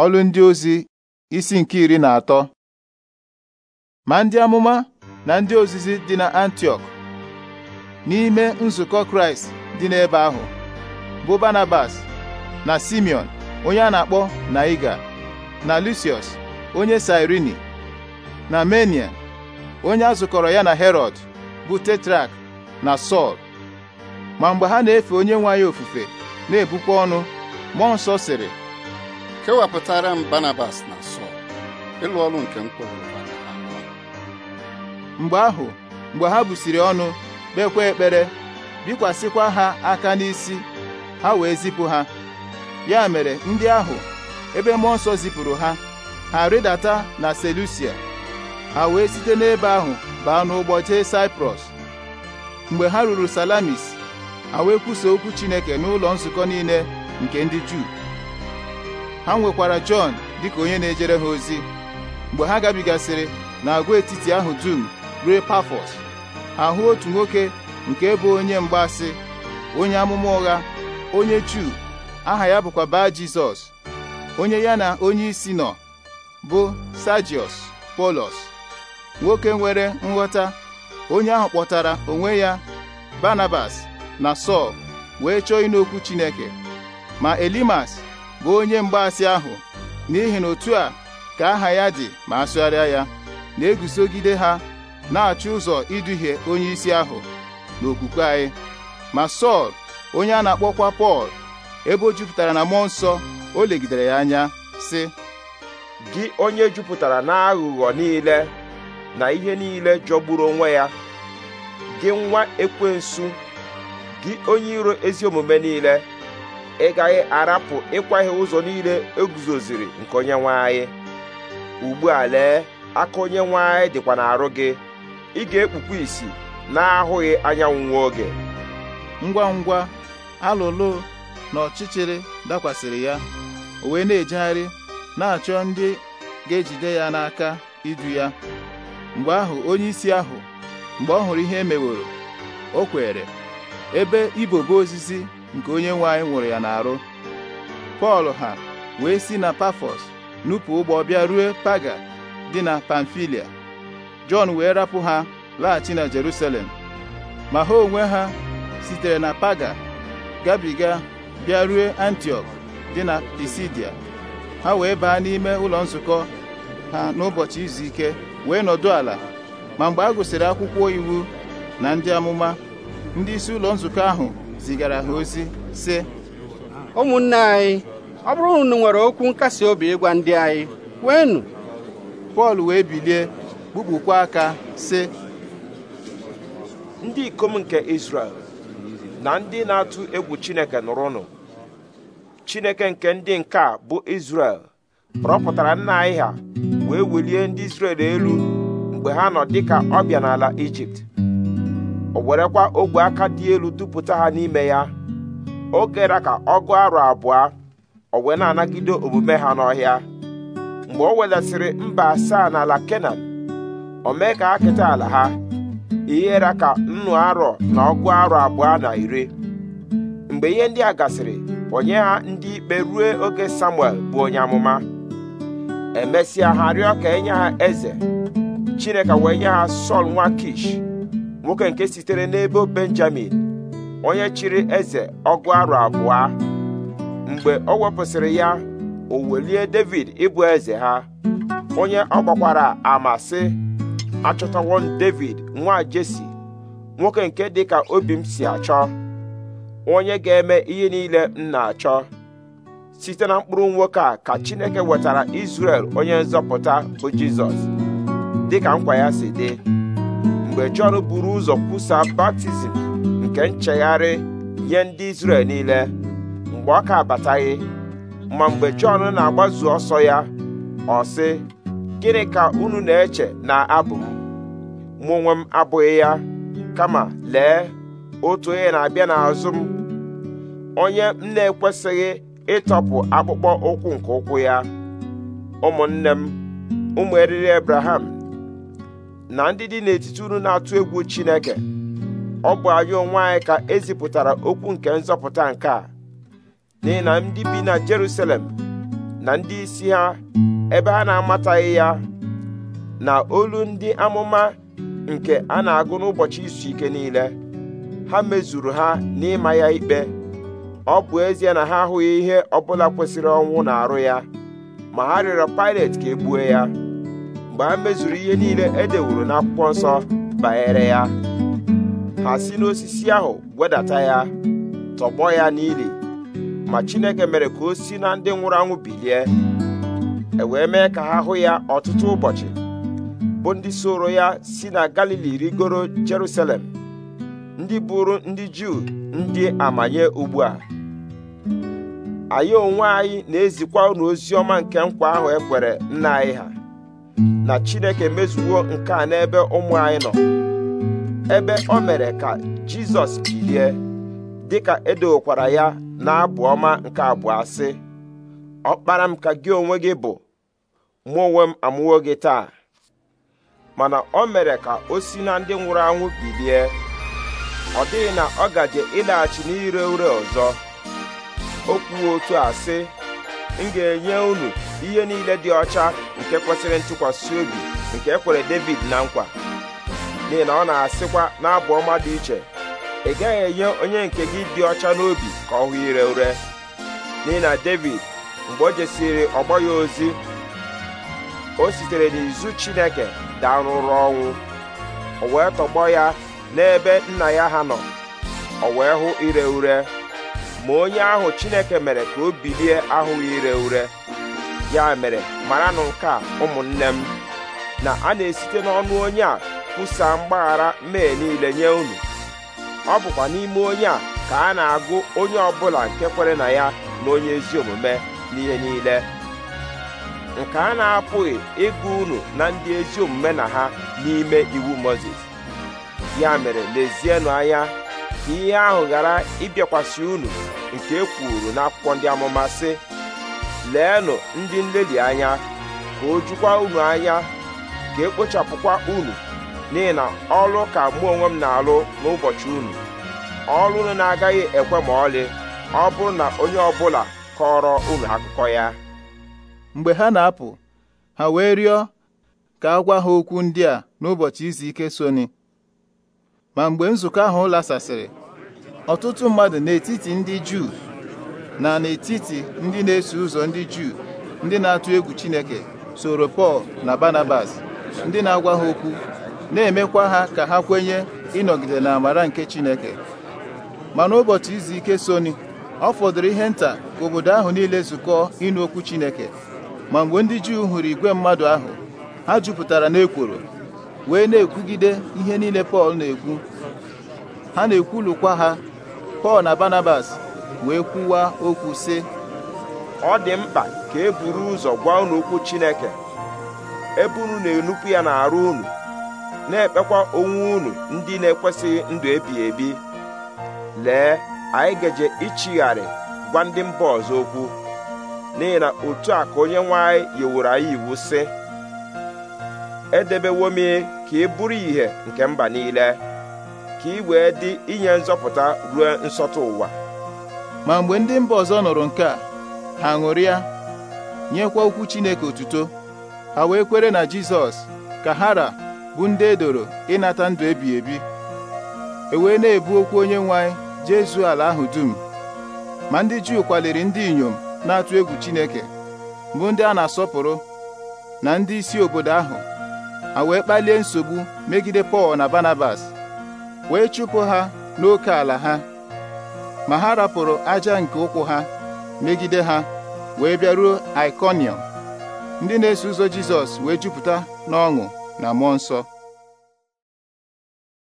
ọlụ ndị ozi isi nke iri na atọ ma ndị amụma na ndị ozizi dị na antiok n'ime nzukọ Kraịst dị n'ebe ahụ bụ Barnabas na Simeon onye a na-akpọ Naiga na Lucius onye Sirini na Menia onye a zụkọrọ ya na Herod bụ Tetrak na Sọl ma mgbe ha na-efe onye nwe anyị ofufe na-ebukwa ọnụ mmụọ nsọ sịrị kewapụtara m Barnabas na Sọl ịlụ ọrụ nke m mgbe ahụ mgbe ha busiri ọnụ kpekwa ekpere bikwasịkwa ha aka n'isi ha wee zipụ ha ya mere ndị ahụ ebe mmụọ nsọ zipụrụ ha ha rịdata na Selusia ha wee site n'ebe ahụ baa n'ụgbọ jee Saịprọs mgbe ha ruru Salamis ha wee kwusa okwu Chineke n'ụlọ nzukọ niile nke ndị Juu ha nwekwara Jọn dịka onye na-ejere ha ozi mgbe ha gabigasịrị n'agwaetiti ahụ dum ruo Pafọs ha hụ otu nwoke nke bụ onye mgbasi onye amụma ụgha onye Juu aha ya bụkwa baa Jizọs onye ya na onye isi nọ bụ Sajiọs Polos nwoke nwere nghọta onye ahụ kpọtara onwe ya Barnabas na Sọl wee chọọ ịnụ Chineke ma Elimas bụ onye mgbaasị ahụ n'ihi na otu a ka aha ya dị ma asụgharịa ya na-egusogide ha na-achọ ụzọ iduhie onye isi ahụ n'okwukwe anyị ma Sọl onye a na-akpọkwa Pọl ebe o jupụtara na mmụọ nsọ o legidere ya anya sị gị onye jupụtara na aghụghọ niile na ihe niile jọgburu onwe ya gị nwa ekwensu gị onye iro ezi omume niile ị gaghị arapụ ịkwaghị ụzọ niile eguzoziri nke onye nwanyị ugbu a lee aka onye nwe anyị dịkwa n'arụ gị ị ga-ekpukwa isi na-ahụghị anyanwụ nwa oge ngwa ngwa alụlụ na ọchịchịrị dakwasịrị ya o wee na-ejegharị na-achọ ndị ga-ejide ya n'aka idu ya mgbe ahụ onye isi ahụ mgbe ọ hụrụ ihe e meworo o kwere ebe ibobo osisi nke onye nwe nwụrụ ya n'arụ pọl ha wee si na pafọs nupụ ụgbọ bịa rue paga dị na pamfilia jọn wee rapụ ha laghachi na jerusalem ma ha onwe ha sitere na paga gabiga bịarue Antioch dị na pisidia ha wee baa n'ime ụlọ nzukọ ha n'ụbọchị izu ike wee nọdụ ala ma mgbe a gụsịrị akwụkwọ iwu na ndị amụma ndị isi ụlọ nzukọ ahụ zigara ha ozi sị ụmụnne anyị ọ bụrụ nwere okwu nkasi obi ịgwa ndị anyị kweenụ Pọl wee bilie kpukpukwa aka sị ndị ikom nke isrel na ndị na-atụ egwu Chineke nụrụnụ Chineke nke ndị nke a bụ Izrel rọpụtara nna anyị ha wee welie ndị isrel elu mgbe ha nọ dịka ọbịa n'ala Ijipt o werekwa ogwe aka dị elu dupụta ha n'ime ya o gera ka ọ gụọ arọ abụọ o wee na-anagide omume ha n'ọhịa mgbe o wedasịrị mba asaa n'ala kenan o mee ka ha keta ala ha ihere ka nnu arọ na ọgụ arọ abụọ na iri mgbe ihe ndị a gasịrị onye ha ndị ikpe rue oge samuel bụ onye amụma emesịa ha rịọ ka enye ha eze chineke wee nye ha sọl nwa kish nwoke nke sitere n'ebe benjamin onye chịrị eze ọgụ arụ abụọ mgbe ọ wepụsịrị ya o welie david ịbụ eze ha onye ọ gbakwara ama david nwa jesi nwoke nke dịka obi m si achọ onye ga-eme ihe niile m na-achọ site na mkpụrụ nwoke a ka chineke wetara izrel onye nzọpụta bụ jizọs dịka nkwa ya si dị mgbe Jọn buru ụzọ kwusaa baptizim nke nchegharị nye ndị Izrel niile mgbe ọ ka abataghị ma mgbe Jọn na-agbazu ọsọ ya ọ sị gịnị ka unu na-eche na abụ m mụ onwe m abụghị ya kama lee otu onye na-abịa n'azụ m onye m na-ekwesịghị ịtọpụ akpụkpọ ụkwụ nke ụkwụ ya ụmụnne m ụmụ eriri Abraham na ndị dị n'etiti unu na-atụ egwu Chineke ọ bụ anyị onwe anyị ka ezipụtara okwu nke nzọpụta nke a n'ihi na ndị bi na Jerusalem na ndị isi ha ebe ha na-amataghị ya na olu ndị amụma nke a na-agụ n'ụbọchị izu ike niile ha mezuru ha n'ịma ya ikpe ọ bụ ezie na ha ahụghị ihe ọbụla kwesịrị ọnwụ na arụ ya ma ha rịọrọ Pilet ka e ya mgbe a mezuru ihe niile e dewuru n'akwụkwọ nsọ banyere ya ha si n'osisi ahụ wedata ya tọgbọ ya n'ili ma Chineke mere ka o si na ndị nwụrụ anwụ bilie e wee mee ka ha hụ ya ọtụtụ ụbọchị bụ ndị soro ya si na Galili rigoro Jerusalem ndị bụrụ ndị Juu ndị amanye ugbu a anyị onwe anyị na-ezikwa unu ozi ọma nke nkwa ahụ ekwere nna anyị ha na chineke mezuwo nke a n'ebe ụmụ anyị nọ ebe o mere ka jizọs bilie dịka edowokwara ya na-abụ ọma nke abụọ asị kpara m ka gị onwe gị bụ mụ onwe m amụwo gị taa mana o mere ka o si na ndị nwụrụ anwụ bilie ọ dịghị na ọ gaje ịlaghachi n'ire ure ọzọ o kwuo otu a sị m ga-enye unu ihe niile dị ọcha nke kwesịrị ntụkwasị obi nke ekwere David na nkwa n'ihi na ọ na-asịkwa n'abụ ọma dị iche ị gaghị enye onye nke gị dị ọcha n'obi ka ọ hụ ire ure n'ihi na David mgbe o jesiri ọgbọ ya ozi o sitere n'izu Chineke daa n'ụrụ ọnwụ o wee tọgbọ ya n'ebe nna ya ha nọ o wee hụ ire ure ma onye ahụ Chineke mere ka o bilie ahụghị ire ure ya mere maranụ nke a ụmụnne m na a na-esite n'ọnụ onye a kwusaa mgbaghara mee niile nye unu ọ bụkwa n'ime onye a ka a na-agụ onye ọbụla nke kwere na ya na onye ezi omume n'ihe niile nke a na-apụghị ịgụ unu na ndị ezi omume na ha n'ime iwu Mozis ya mere lezienụ anya ka ihe ahụ ghara ịbịakwasị unu nke e kwuru n'akwụkwọ ndị amụma sị leenụ ndị nlelị anya ka o jukwa unu anya ka ekpochapụkwa unu n'ihi na ọrụ ka mụ onwe m na-alụ n'ụbọchị unu ọrụ unu na-agaghị ekwe ma ọlị ọ bụrụ na onye ọbụla kọrọ unu akụkọ ya mgbe ha na-apụ ha wee rịọ ka a gwa ha okwu ndị a n'ụbọchị izu ike soni ma mgbe nzukọ ahụ lasasịrị ọtụtụ mmadụ n'etiti ndị Juu na n'etiti ndị na-eso ụzọ ndị Juu ndị na-atụ egwu Chineke soro Pọl na Barnabas ndị na-agwa ha okwu na-emekwa ha ka ha kwenye ịnọgide na amara nke Chineke ma n'ụbọchị izu ike soni ọ fọdụrụ ihe nta ka obodo ahụ niile zukọọ ịnụ okwu Chineke ma mgbe ndị Juu hụrụ igwe mmadụ ahụ ha jupụtara n'ekworo wee na-ekwugide ihe niile Pọl na-ekwu ha na-ekwulukwa ha Pọl na Barnabas wee kwuwa okwu sị ọ dị mkpa ka e buru ụzọ gwa unu okwu Chineke ebe unu na-enupụ ya n'arụ unu na-ekpekwa onwe unu ndị na-ekwesịghị ndụ ebighị ebi lee anyị gaje ichigharị gwa ndị mba ọzọ okwu n'ihi na otu a ka onye nwe anyị yiwuru anyị iwu sị edebewo m ka ị e bụrụ ìhè nke mba niile ka ị wee dị inye nzọpụta ruo nsọtụ ụwa ma mgbe ndị mba ọzọ nụrụ nke a ha ṅụrịa nyekwa okwu Chineke otuto ha wee kwere na Jizọs ka hara bụ ndị edoro ịnata ndụ ebi ebi e wee na-ebu okwu onye nwe anyị jezuo ala ahụ dum ma ndị Juu kwaliri ndị inyom na-atụ egwu Chineke bụ ndị a na-asọpụrụ na ndị isi obodo ahụ ha wee kpalie nsogbu megide Pọl na Banabas wee chụpụ ha n'oke ala ha ma ha rapụrụ aja nke ụkwụ ha megide ha wee bịaruo Ikonium ndị na-eso ụzọ Jizọs wee jupụta n'ọṅụ na mmụọ nsọ